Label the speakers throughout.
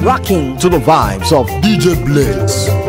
Speaker 1: rocking to the vibes of DJ Blitz.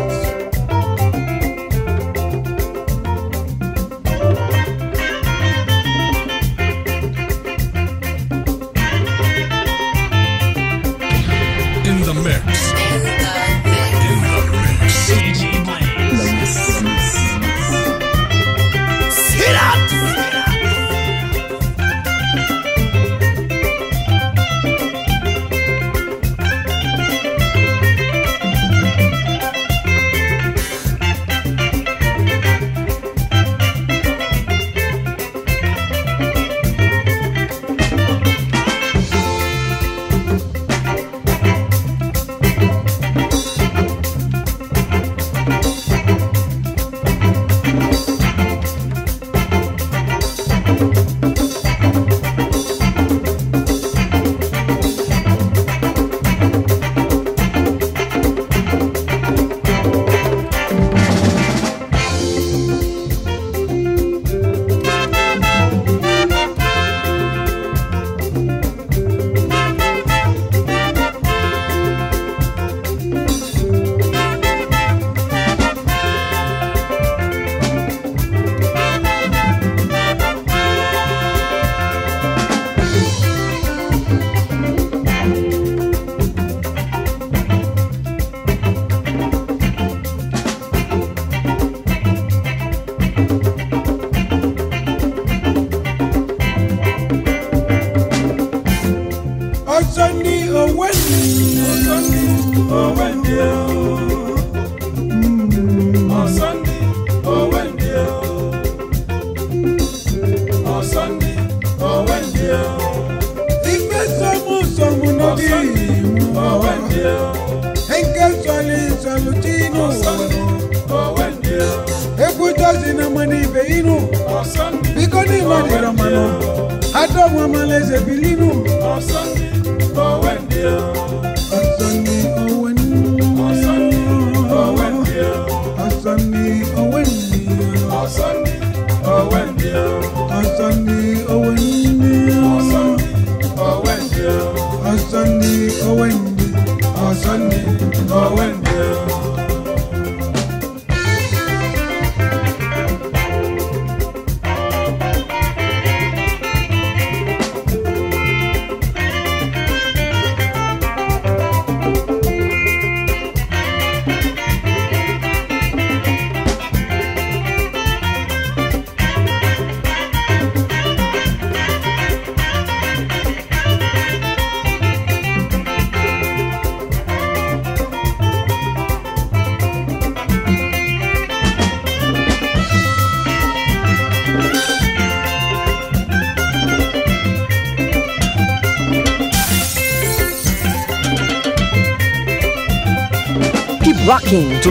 Speaker 1: going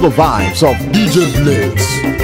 Speaker 1: to the vibes of DJ Blitz.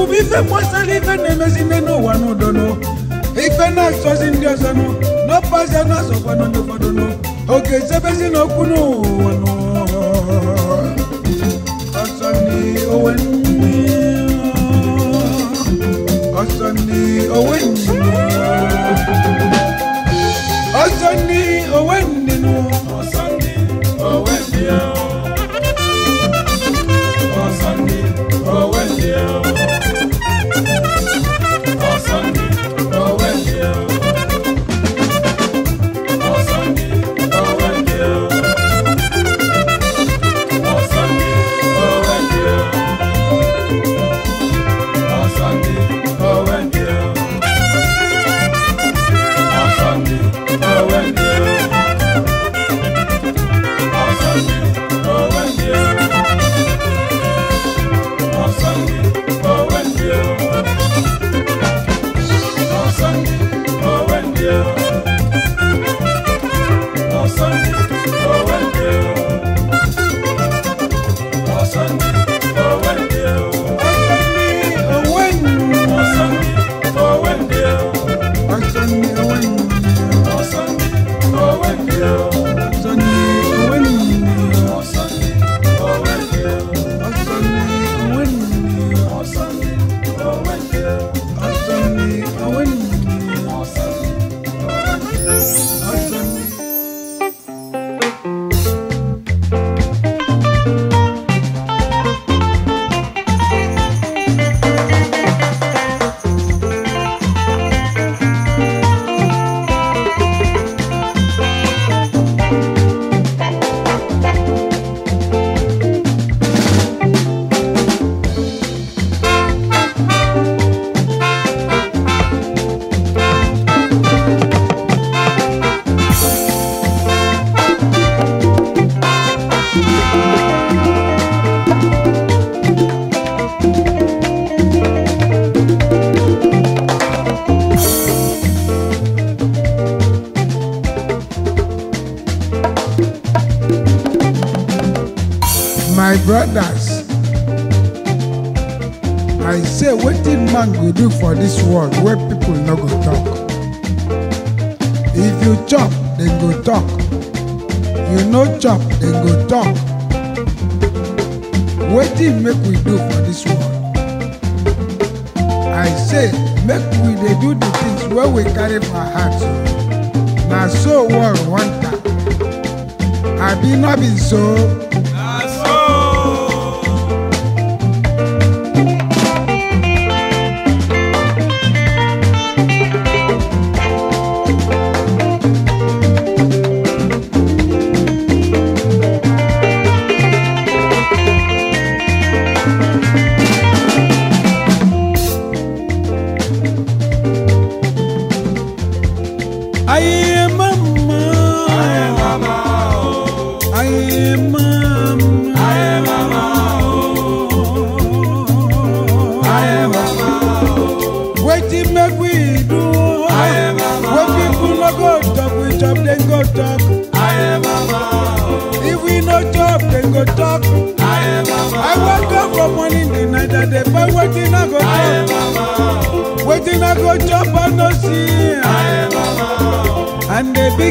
Speaker 2: Kubi fe mwasali fe nemesi neno wano dono Ife na sosi ndio sano No pasa na sofa no nyo fadono Oke sebesi no kuno wano Osani owenye Osani owenye Osani people no go talk if you chop then go talk you no chop then go talk What wetin make we do for this world i say make we they do the things where we carry for hearts. na so world want am abi not be so.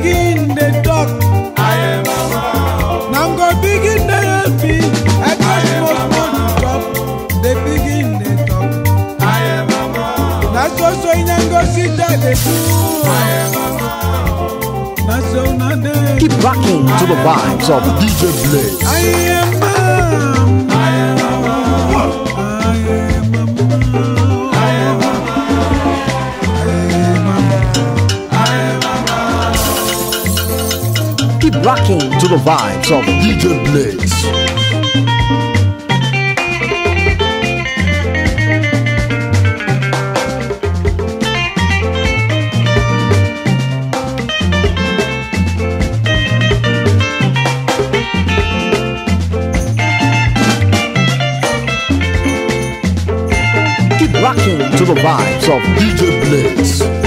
Speaker 2: begin the talk. I am a man. Now i to begin the happy. I got not most money to talk. They begin the talk. I am a man. Now so so in and go sit there they do. I am a man.
Speaker 1: Now so now they. Keep rocking to the vibes of DJ Blaze. I am rocking to the vibes of DJ Blitz. to the vibes of DJ Blitz.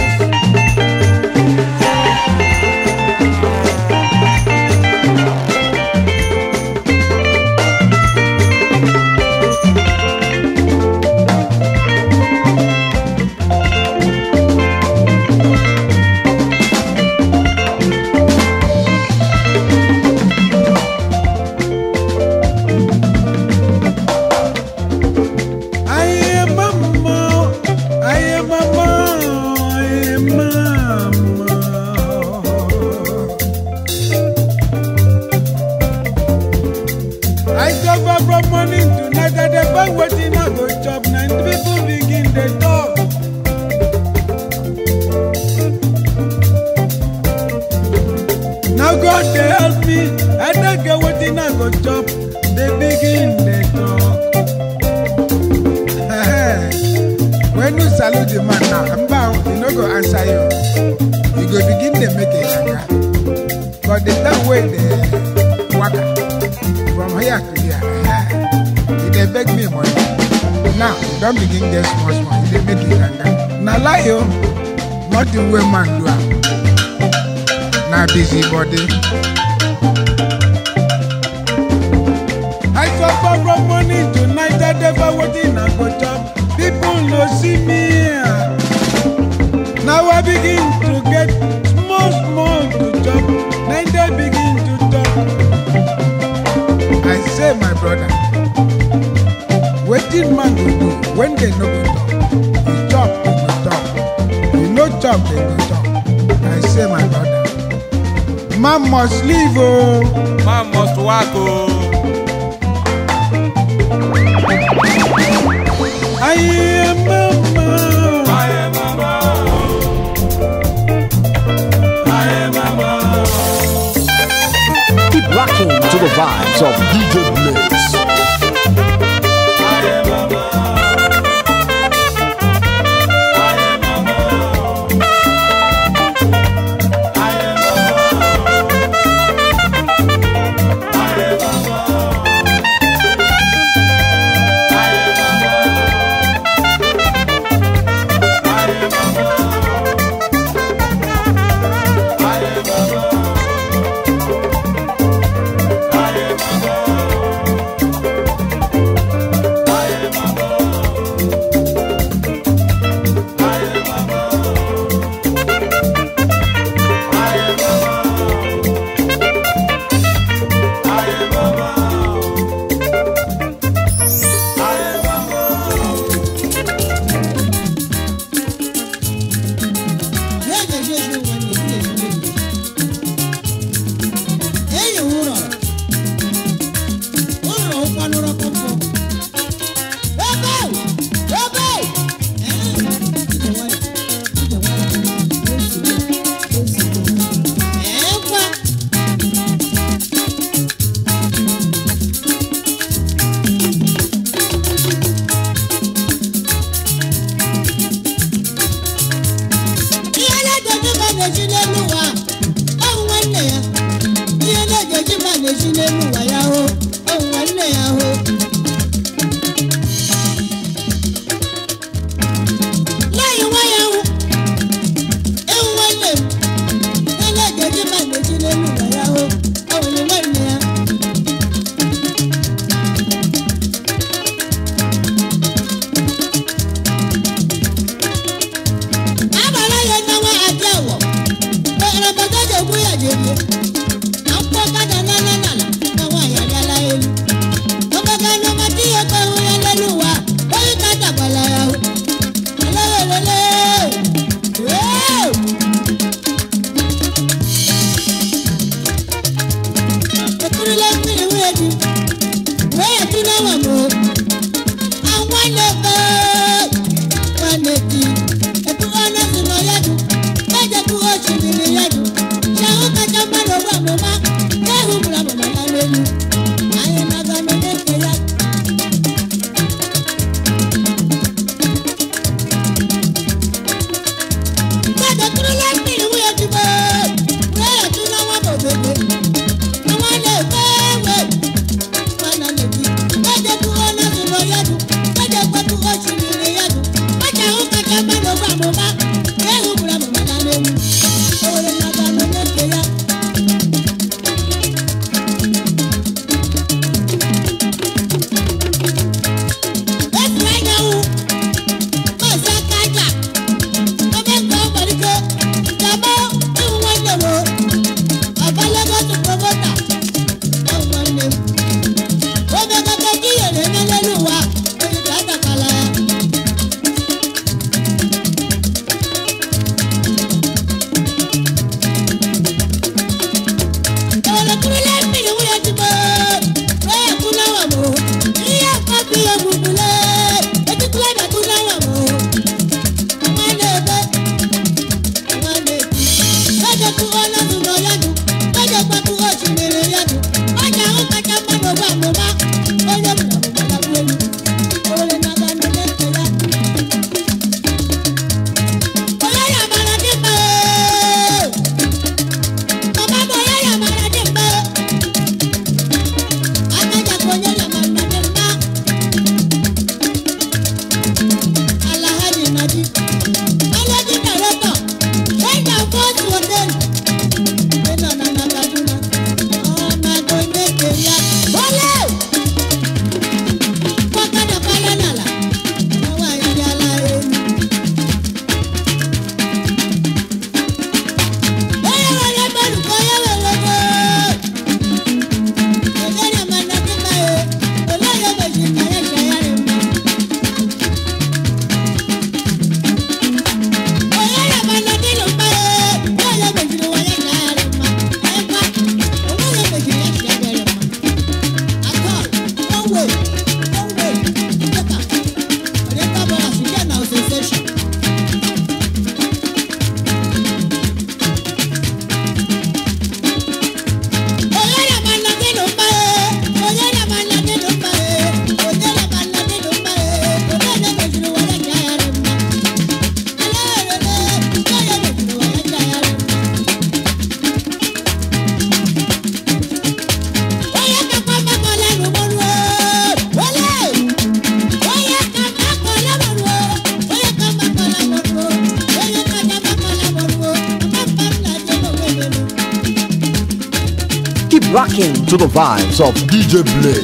Speaker 1: Some DJ play.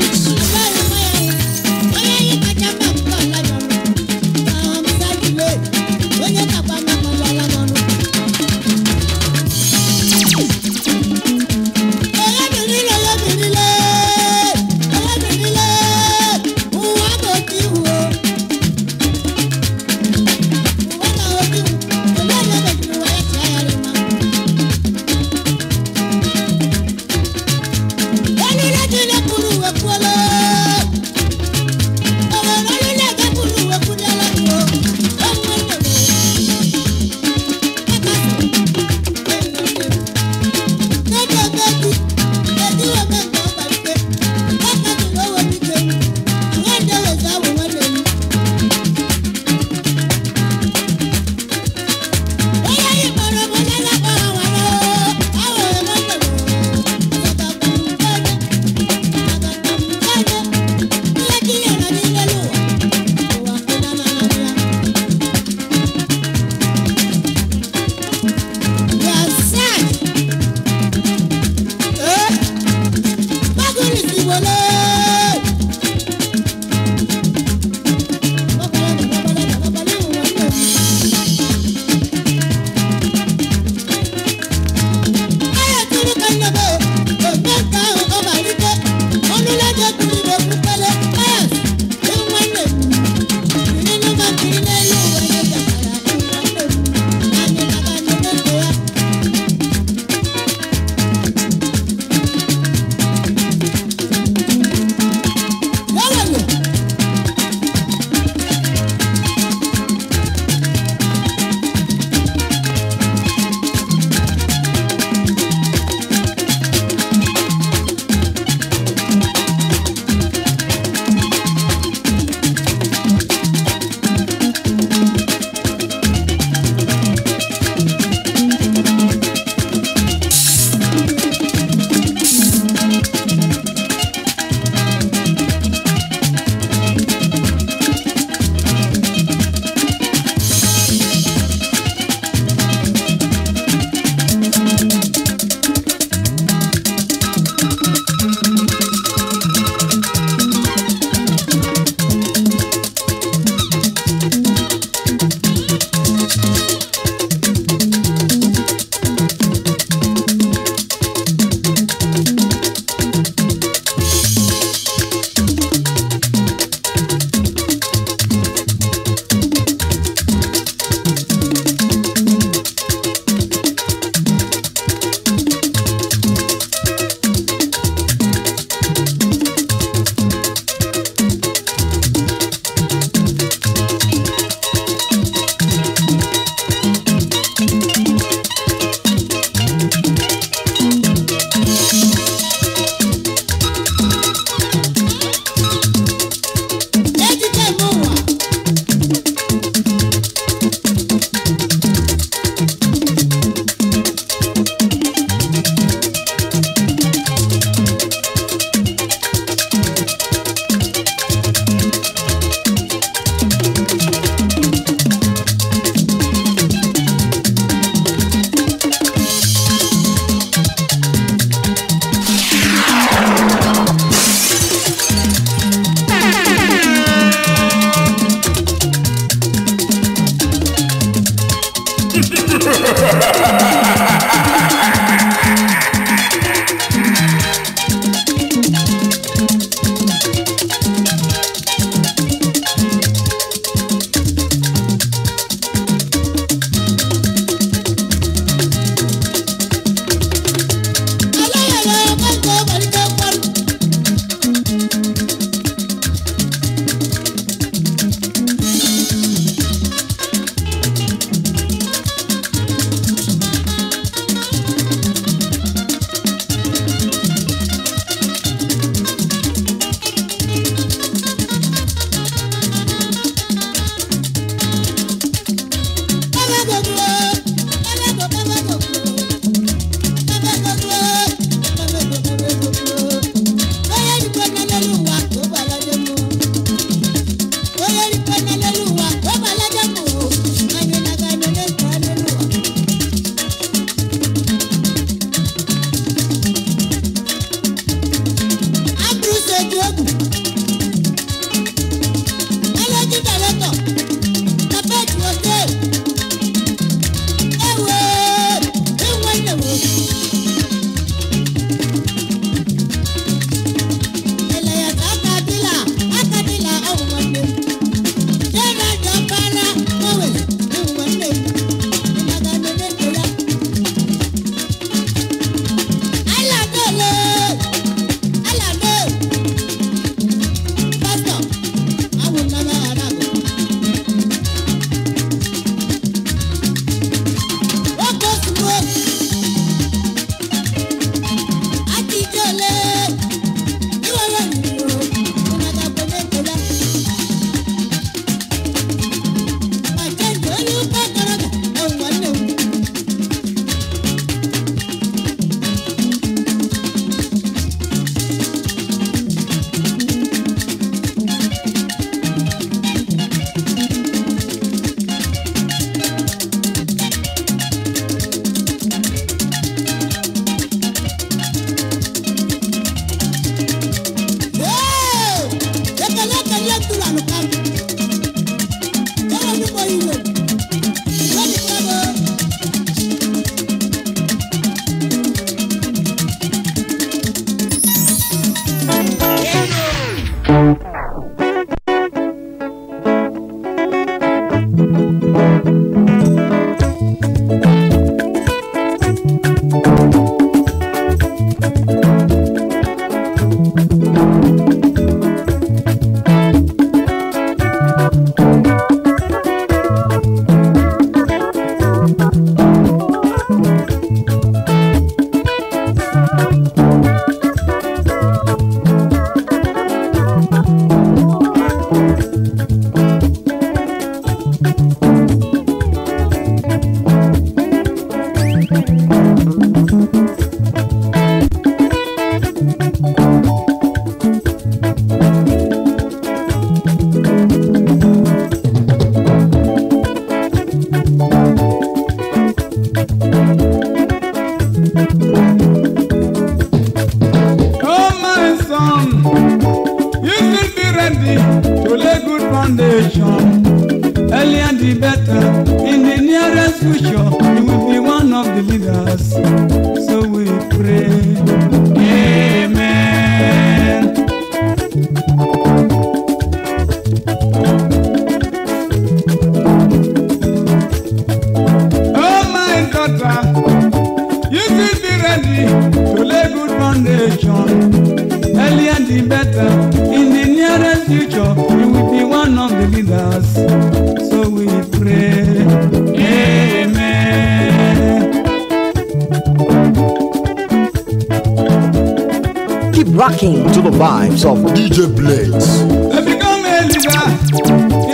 Speaker 1: rocking to the vibes of DJ Blaze. To become a leader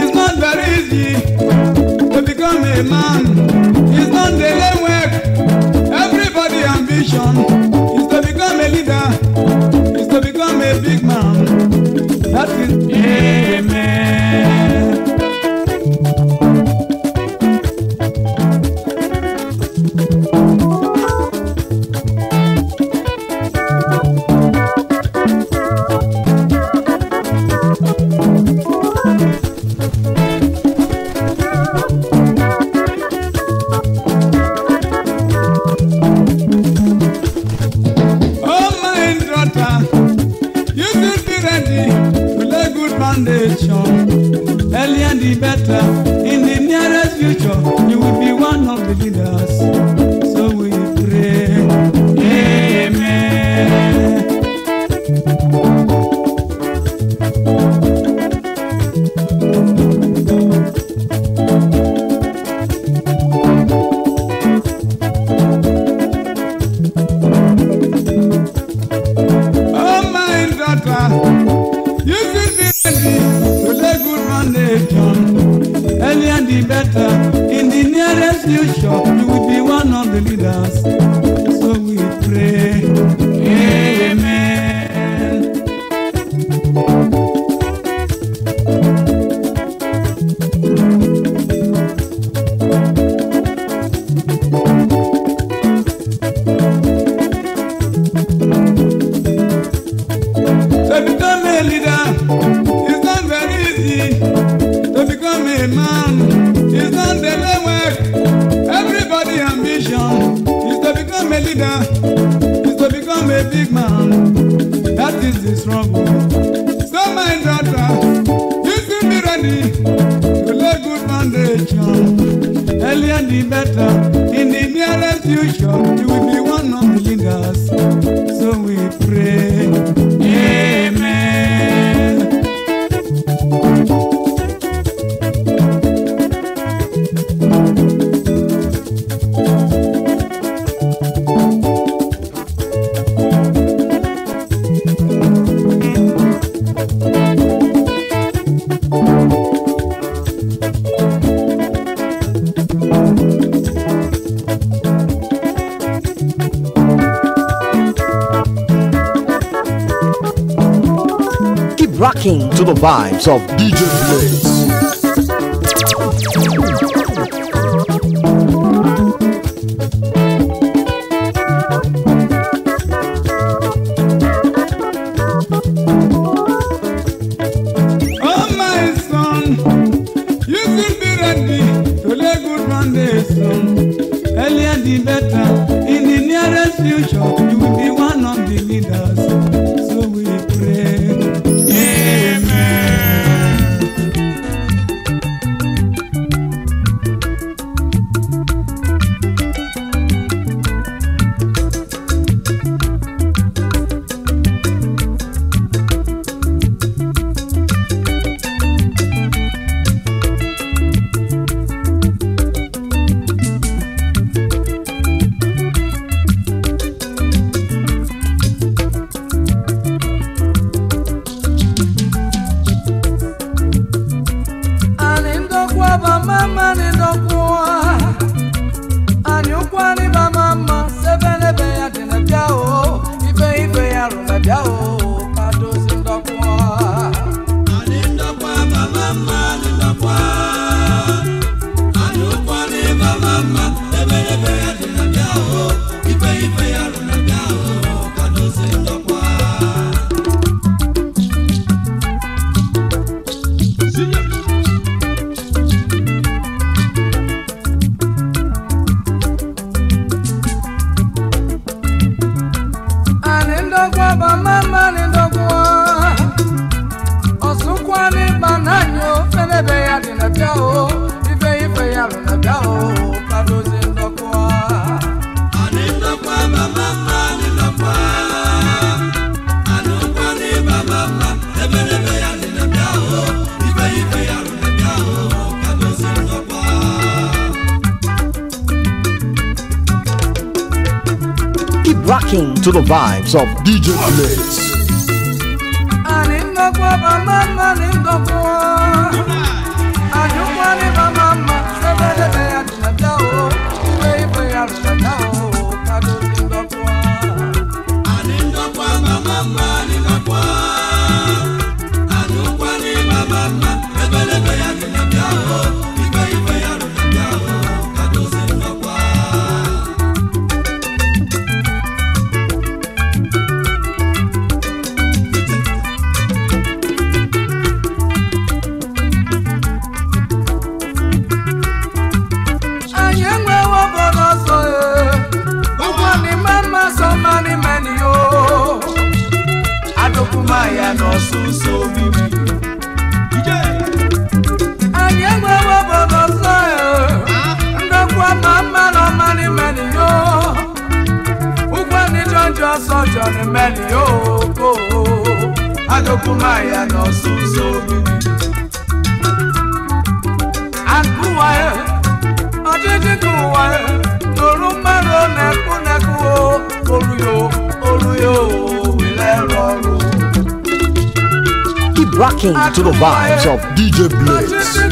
Speaker 1: is not very easy. To
Speaker 2: become a man is not daily work. Everybody's ambition is to become a leader, is to become a big man. That is. Yeah.
Speaker 1: rocking to the vibes of DJ Blaze.
Speaker 2: ndako ya bamama na ndako
Speaker 1: to the vibes of DJ Blitz.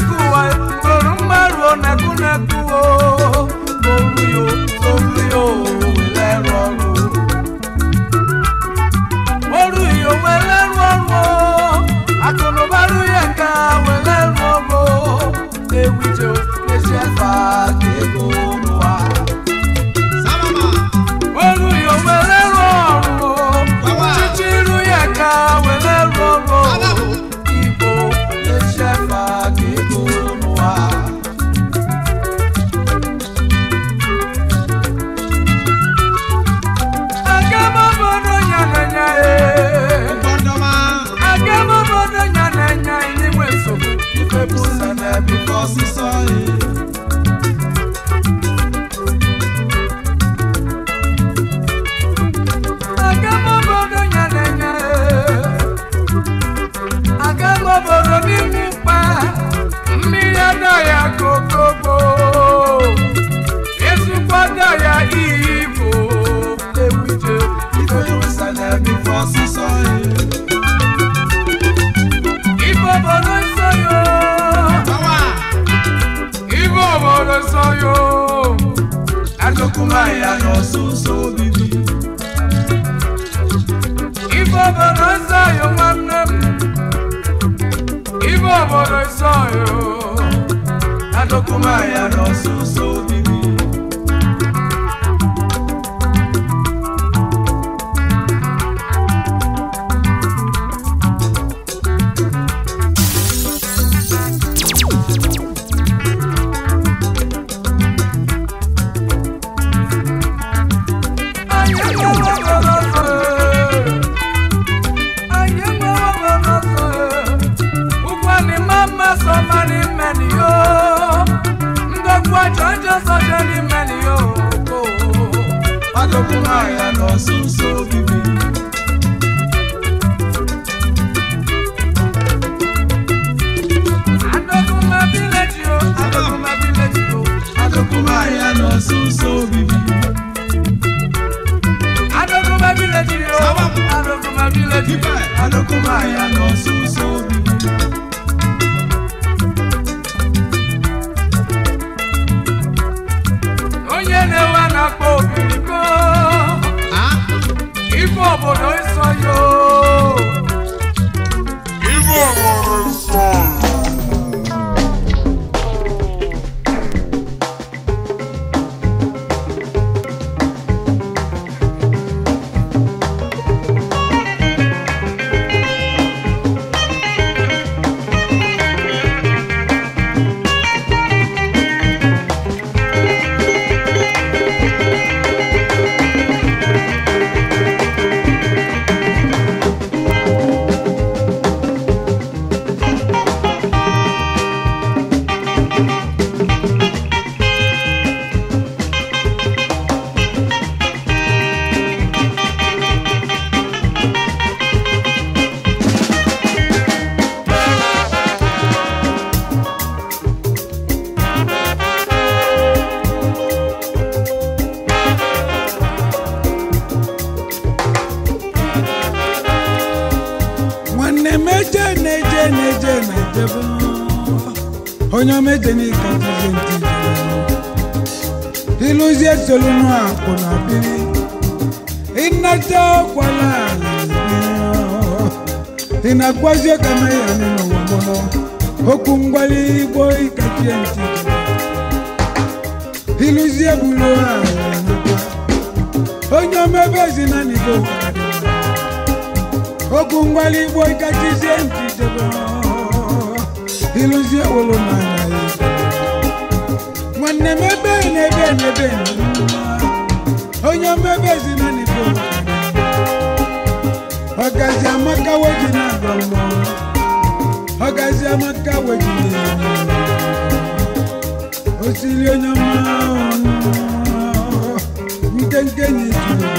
Speaker 2: kumaya n'ọsụsụ obibi ife obodo nsọ yo nwanne m ife obodo nsọ yo na dokumaya n'ọsụsụ obibi nosso sonho. 哦。ilụzie solunu akwụna biri ịnata kwala ala na-agwazi ụka na ya n'ụwa mụrụ okwu igbo ikachie ntị ilụzie bulu onye omebe na okwu ngwali igbo ikachizie ntị debe ilụzie wolu n'anya nwanne m ebe na-ebe n'ebe onye mmebe ezina n'ebe ọgazi amaka weji na-agba mbọ ọgazi amaka weji osiri onye nke nkenke nyi juru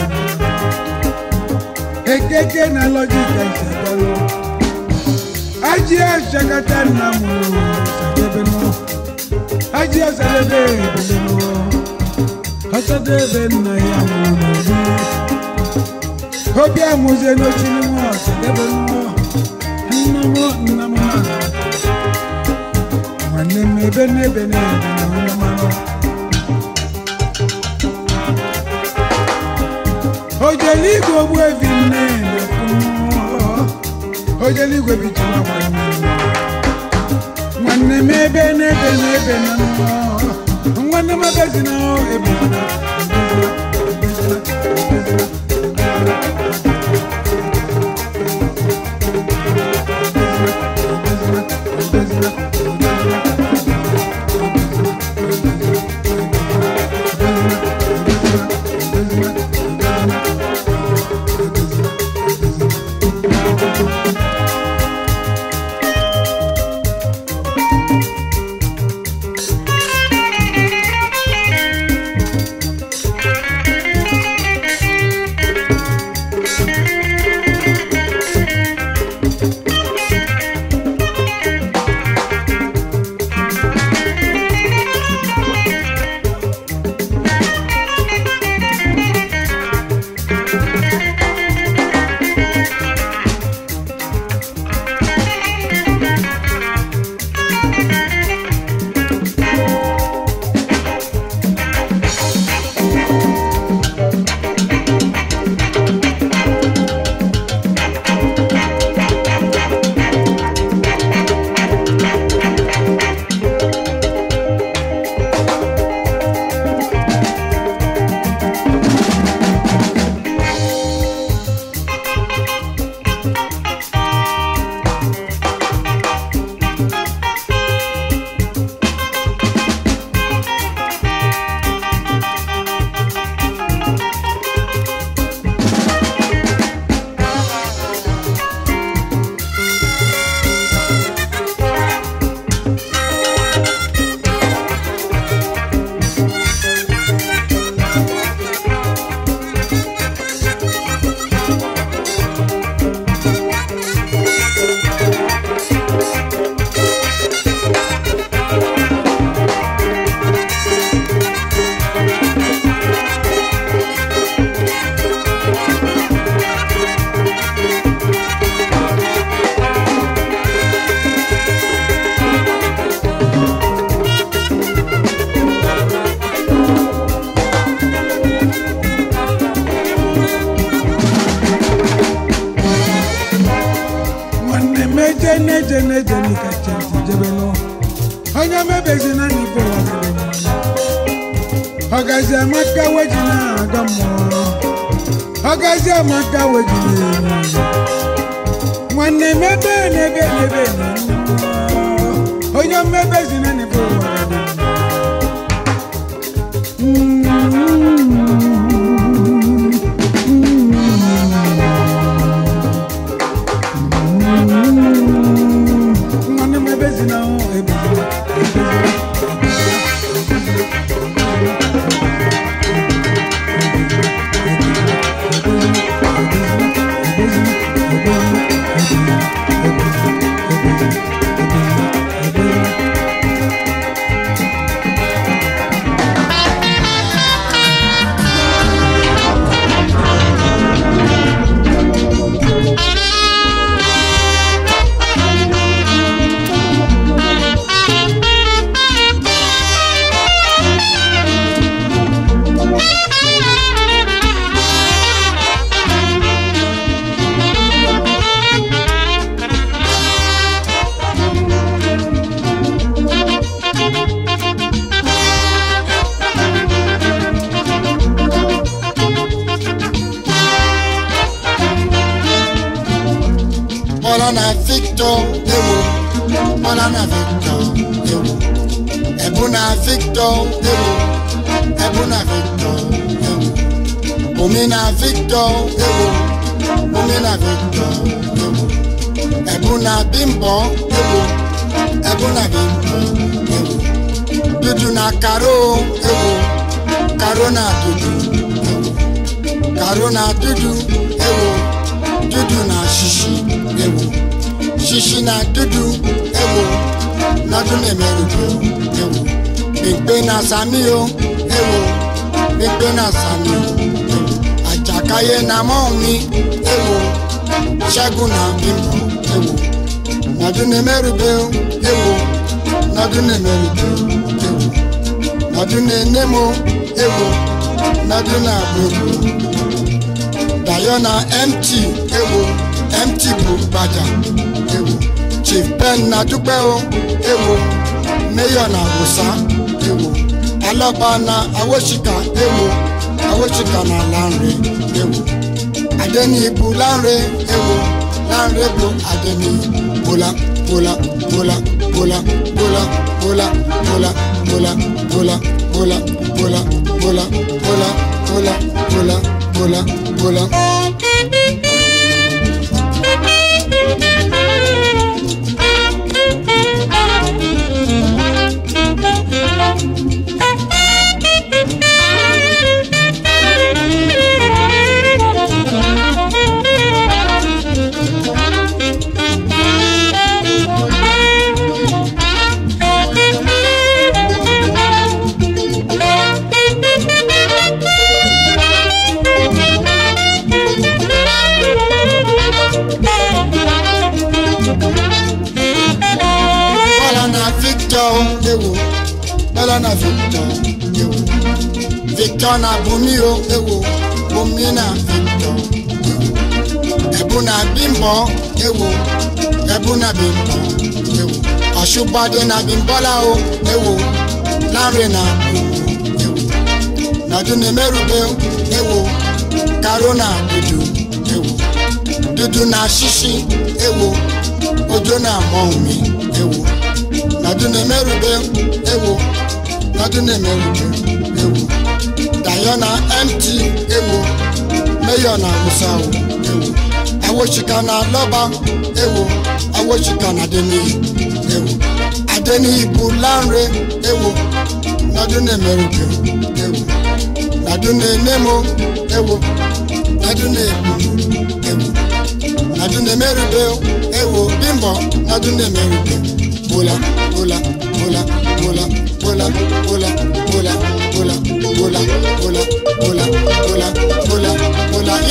Speaker 2: ekeke na lọjika isagalụ ajị achakata nna m sakebe n'ụlọ aji asadebe ebelemo asadebe nna ya mụrụ obi amụzie n'ochiri m asadebe nnọ nna m nna m ha nwanne m ebe n'ebe n'ebe na onye mara ojele igwe ogbu evi nne na-ekwu mmụọ ojele na-eme ebe na ebe na ebe na nwanne magazin ahụ ebe
Speaker 3: Victor, ewo, Ebuna Victor, ewo, Omina Victor, ewo, Omina Victor, ewo, Ebuna Bimbo, ewo, Ebuna Bimbo, Ebo. Dudu na Karo, Ebo. Karo na Dudu, Ebo. Karo na Dudu, Ebo. Dudu na Shishi, Ebo. Shishi na Dudu, ewo, Nadu na Emerubu, Ebo. Mekpe na Sami o, ewo, mekpe na Sami o, Àjàkáyé na mọ́ mi, ewo, Ṣẹ́gun na Bímbọ́, ewo, Nọdún ní Mẹ́rìbẹ́ o, ewo, Nọdún ní Mẹ́rìbẹ́ o, ewo, Nọdún ní Nemo, ewo, Nọdún ní Àbúrò, na MT, ewo, MT bụ Gbajà, ewo, Chief Ben na Dúpẹ́ o, ewo, Mayor na ewo alaba na Awosika ewo Awosika na lanre ewo adenibu lanre ewo lanre bụ adeni bola bola bola bola bola bola bola bola bola bola bola bola bola bola bola bola bola Victor na Bumi o ewo Bumi na Victor Ebu na Bimbo ewo Ebu na Bimbo ewo Ọ̀ṣùbọ́dé na Bimbola o ewo Lanre na Bumi ewo Nọdún na Merube o ewo Karo na Dudu ewo Dudu na Shishi ewo Ojo na Mọ́ọ̀mí ewo Nọdún ni Merube ewo Nọdún na Merube ewo. dayona mt ewo meyona musawo ewo awochika na lọba ewo awochika na adeniyi ewo adeniyi bụ lanre ewo nadune meruke ewo nadune nemo ewo nadune ebulu
Speaker 2: ewo
Speaker 3: nadune merube ewo bimbo nadune merube hola, hola, hola, hola, hola, hola, hola, hola, hola, hola, hola, hola, hola,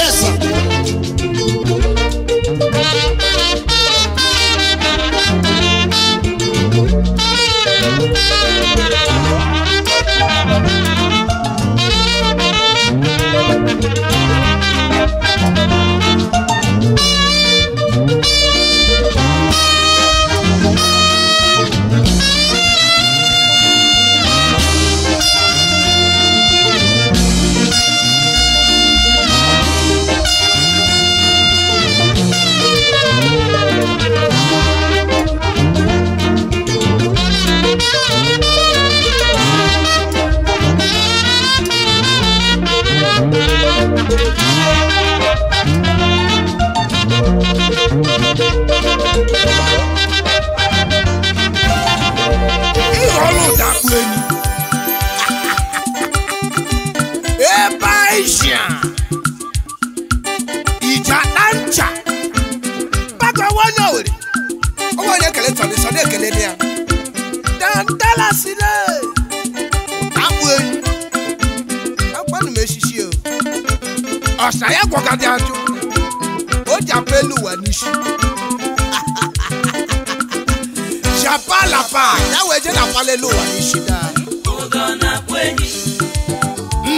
Speaker 2: anwalele ụwa n'ishida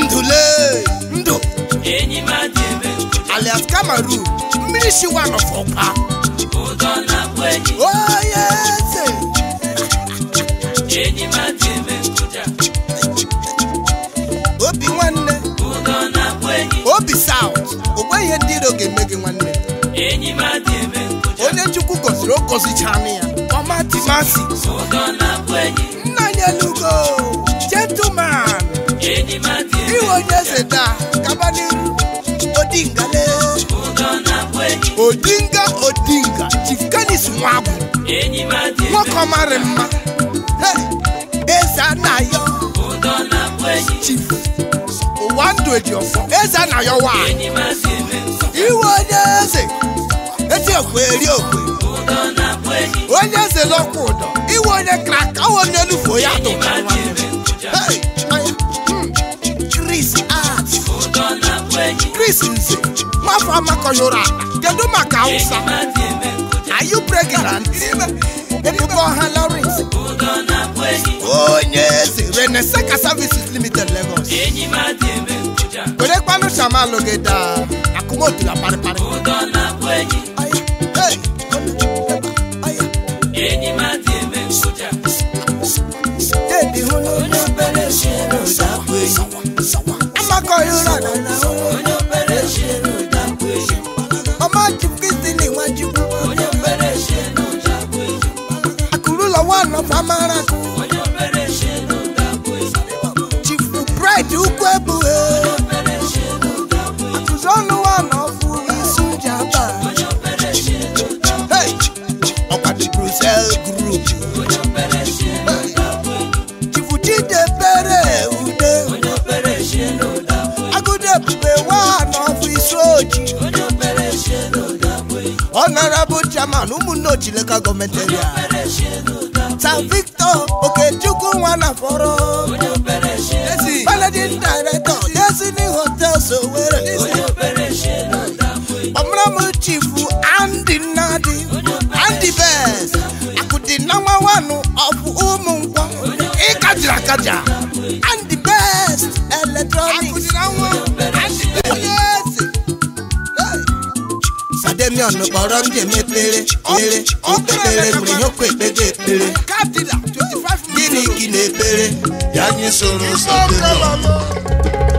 Speaker 2: ndule ndụ alias kamaru mmiri shiwa nọfọkwa eze obi nwanne obi saut ogbe ihe ndị iro ga-eme gị nwanne onye chukwu gọziri o ya ọmati masi. Ugonabwenyi. Nnanye lugo, gentleman. Enyi mati ebe. Iwo nyeze da, odingale, n'iru, odinga le. Ugonabwenyi. Odinga odinga, chief Kanis Nwabu. Enyi mati ebe. Nwoke mara mma. Eze anayo. Ugonabwenyi. Chief. Owando Ejiofo. Eze anayo wa. Enyi mati ebe. Iwo nyeze. Eti okwe eri okwe. Ugonabwenyi onye eze n'ọkwa ụdọ iwe onye krak ọwụ onye olufo ya tụta hmm. Chris Art Chris Nze nwafọ amakọyọrọ kedu maka Hausa are you pregnant ebubo ha Lawrence
Speaker 3: onye eze reneseka services limited Lagos werekwanụ shamalụ gị daa akụmotu ya parịparị
Speaker 2: soja. Debi hunu. Onye obere shi n'ụdakwa eyi. Amakọ ịrụla na na ụmụ. Onye obere shi n'ụdakwa eyi. Ọma jikwizi n'iwa jikwu. honorable chairman ụmụnne ochileka gọọmenti eria san victor okechukwu nwanafọrọ managing director destiny hotels owere ọmụrụmụ chifu andy nnadi andy best akụdị nọmba wanụ ọbụ ụmụ nkwọ ịkajiri akaja andy best eletrọniks
Speaker 4: mi ọ̀nà bọ̀rọ̀ ń jèmi péré péré ó pépéré kùnrin yóò kó
Speaker 2: ìpéjé péré. kí ni kí ni péré. yanni sọ̀rọ̀ sọ̀rọ̀ lọ.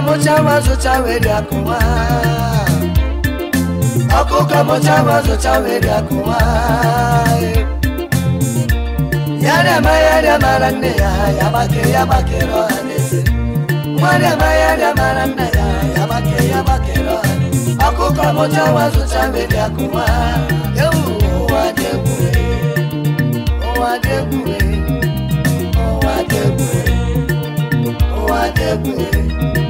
Speaker 4: okukamocavazo cavedakowa okukamocavazo cavedakowa yadama yadamaranaya yabake yabakero anese mwadama yadamaranaya yabake yabakero ane okukamocavazo cavedakowa Yeah.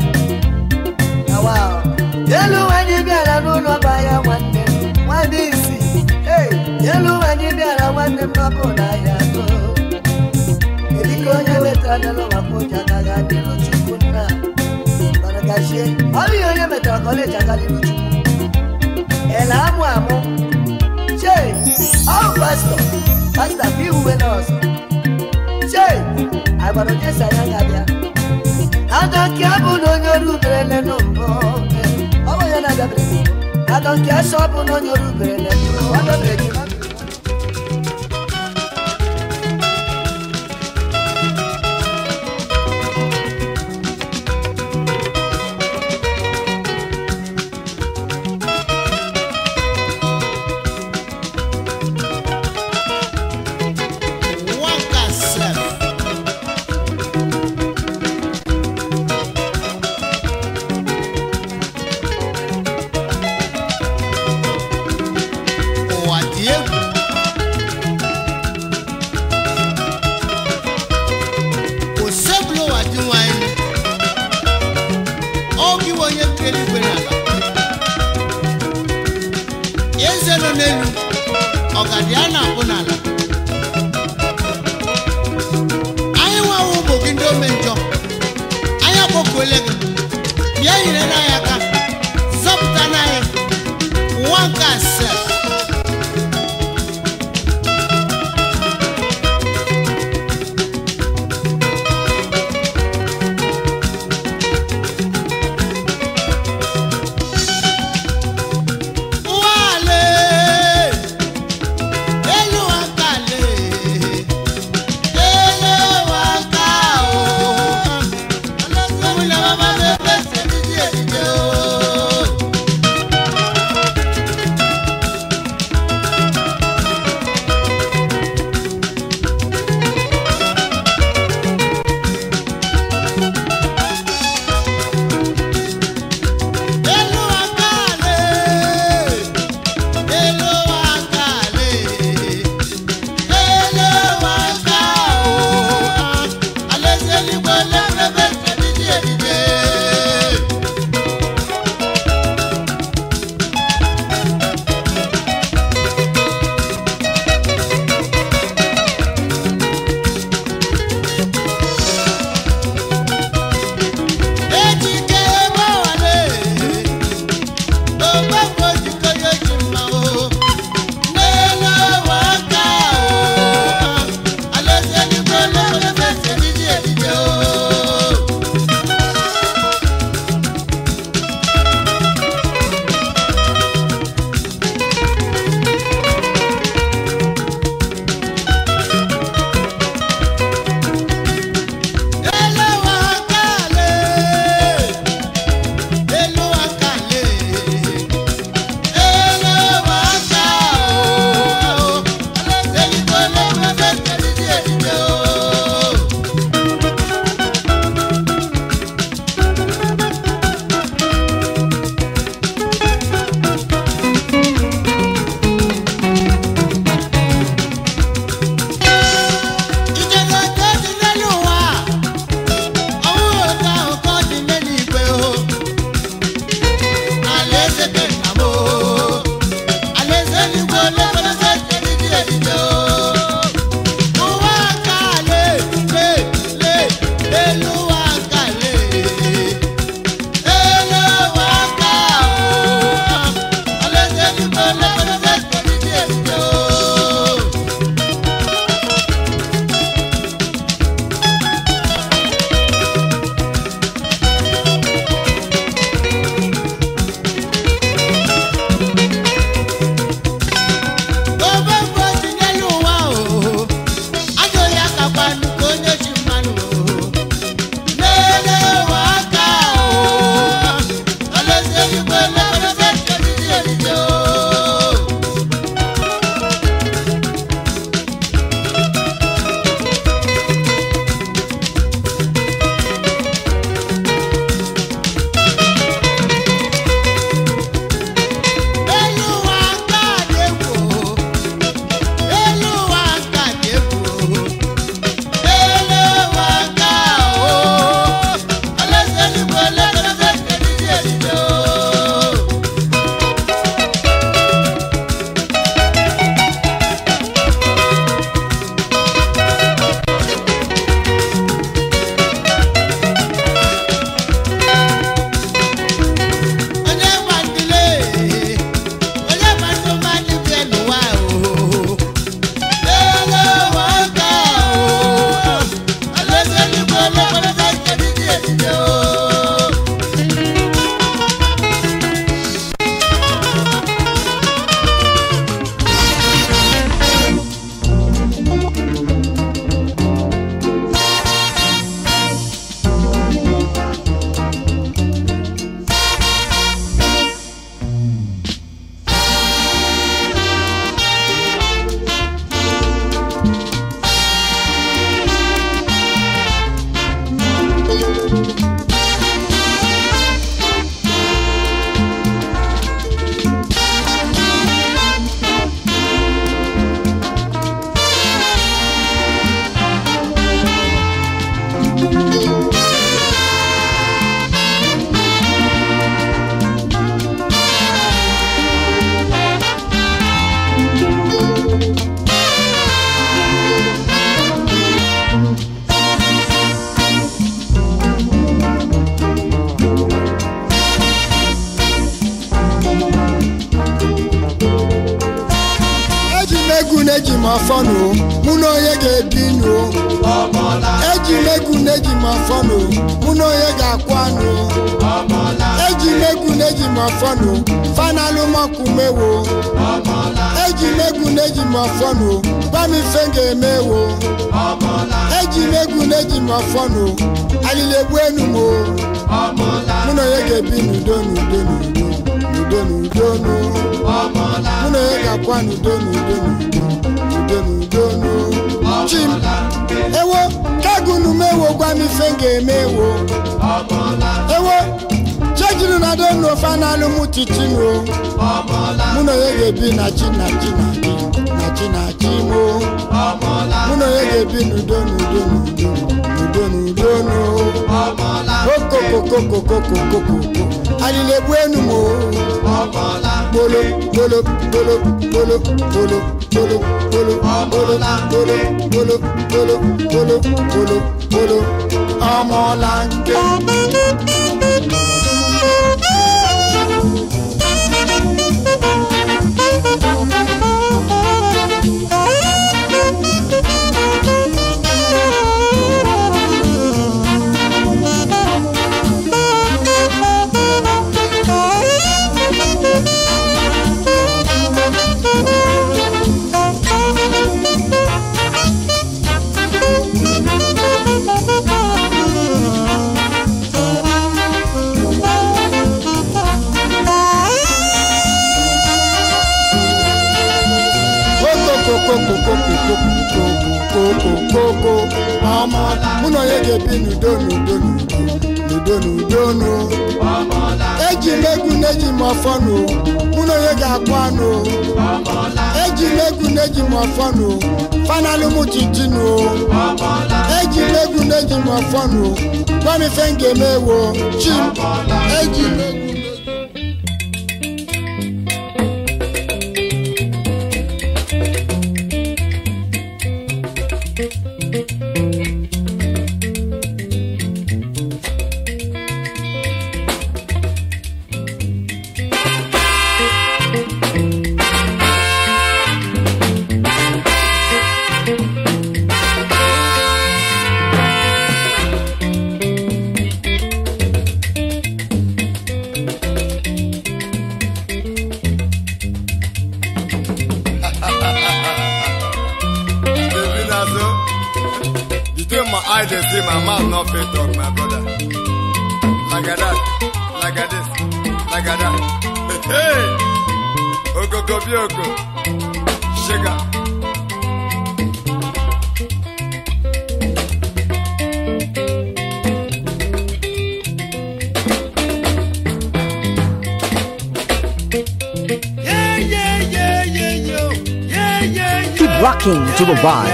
Speaker 4: yelu wanyi biara n'ụlọ ba ya nwanne nwanne isi yelu wanyi biara nwanne mmakụ na ya atọ edika onye wetara n'ụlọ maka ụja agaghị adịrụ chukwu nna baragachie ọ bụghị onye metara kọleji agadịrụ chukwu ele amụ amụ chee ọ pastọ pastọ bụ iwuwe nọọsụ chee agbara onye sa ya ga-abịa aka ka abụ na onye ọrụ uberele n'ụbọ adọbere gị adọ nke sọ bụ na onye oru ubere na-ebu adọbere gị
Speaker 3: m afọ nụ mụ na onye ga-ebi nụ eji m egwu na eji m afọ no mụ na onye ga-akwa nụ eji m egwu na eji m afọ no fanalụ mọkụ mewo eji m egwu na eji m afọ no gwa m ife m ga-emewo eji m egwu na eji m afọ no alili egbu enu m o mụ na onye ga-ebi n'udo n'udo n'udo n'udo n'udo n'udo mụ na onye ga-akwa n'udo n'udo n'udo n'udonu chim ewo kagunu m ewokwa ewo na donu ofe analụ m titinu mụ na onye ga-ebi na chi na chi na chi na chi na chi na onye ga-ebi n'udo n'udo n'udo jonu kokokokokokokokokoko alilebu enumo bolo bolo bolo bolo bolo bolo bolo bolo bolo bolo bolo bolo bolo bolo ọmọlanke. bi n'udo n'udo n'udo n'udo n'udo eji m egwu na-eji mụ na onye ga-akpọ anụ eji megu neji na-eji m ọfọ nụ fanalụ m chichi nụ eji m egwu na-eji m ga-eme chi eji m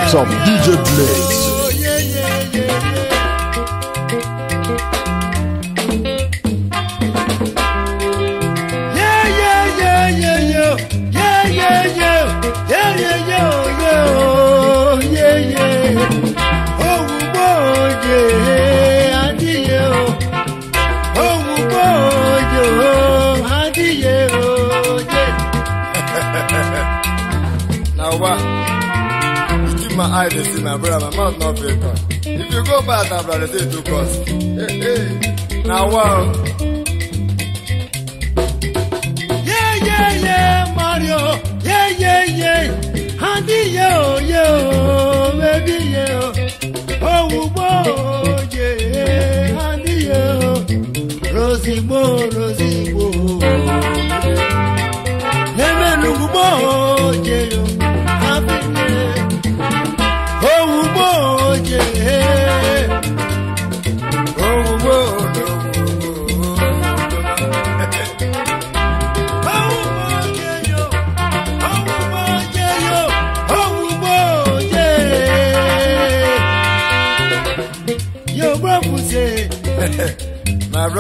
Speaker 1: some DJ Blaze.
Speaker 3: cost no fit if you go back na brother say to cost hey, hey, Now wow. Yeah, yeah,
Speaker 2: yeah, Mario, yeah, yeah, yeah, handy, yo, yo, baby, yo. oh, boy, yeah, handy, yo. Rosie, boy.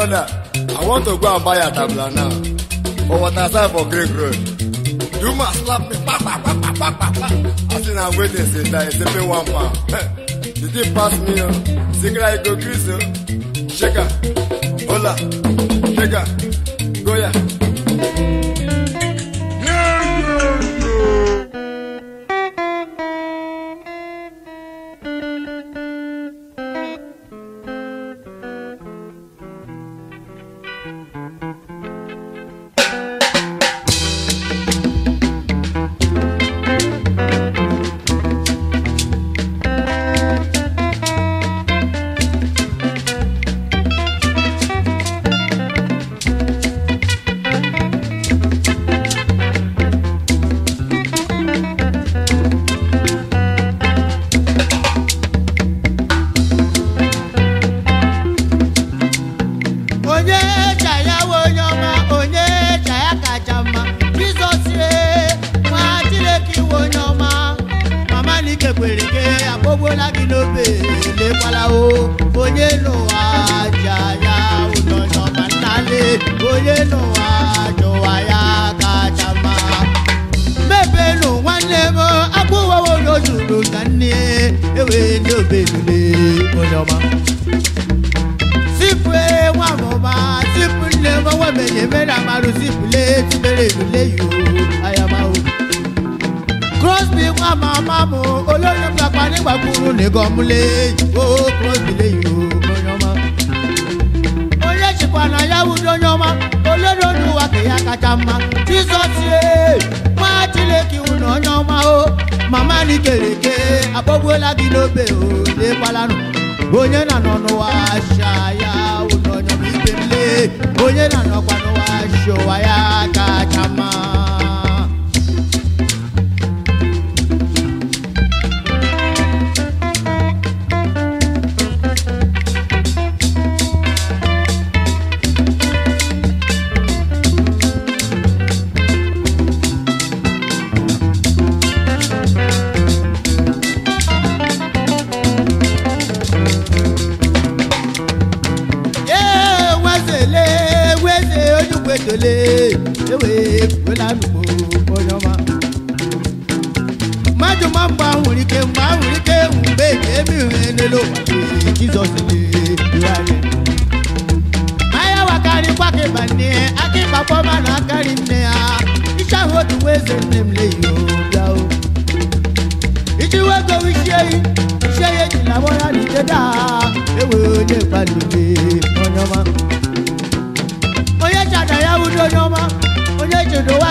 Speaker 3: Ghana. I want to go and buy a tabla now. For what I said for Greek Road. You must slap me. Pa, pa, pa, pa, pa, pa, pa. I think I'm waiting since I said, pay one pound. Did you pass me? Uh? Oh? Sigra, you go crazy. Uh? Oh. Shaker. Hola. Shaker. Goya. Yeah.
Speaker 2: Yeah, yeah, yeah.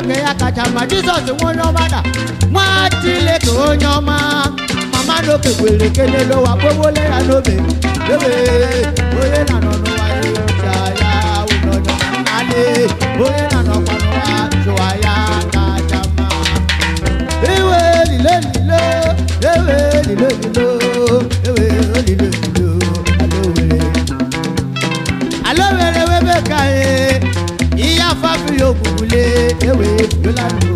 Speaker 2: mgbake ya kacha mma jizọs nwe onye ọma na nwa Chineke onye ọma mama n'oke kwere ekele n'ụwa kpowole ya n'obe ebe onye na nọ n'ụwa ya ya ụlọ anyị onye na nọkwa n'ụwa jụwa ya kacha mma iwe lile lile ewe lile lile ewe lile lile ewe yolanu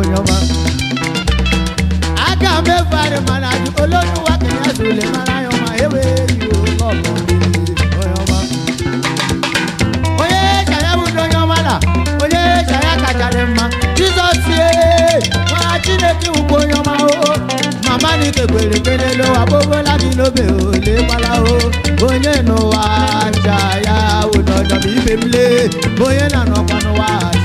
Speaker 2: oyoma. aga mẹ́fà rẹ̀ mara ju olódùwà kìnìún àti olè mara yọmọ ewe yóò lọ́mọ oyoma. oye jaya mu do yọmọ la oye jaya kaja rẹ̀ ma jesus ye wọn a ti lè kí n o màmá ni kékeré kéde ló wà pala o onye nù wá jaya
Speaker 3: wò lọ́dọ̀ bí bèbí lé bóyá nànà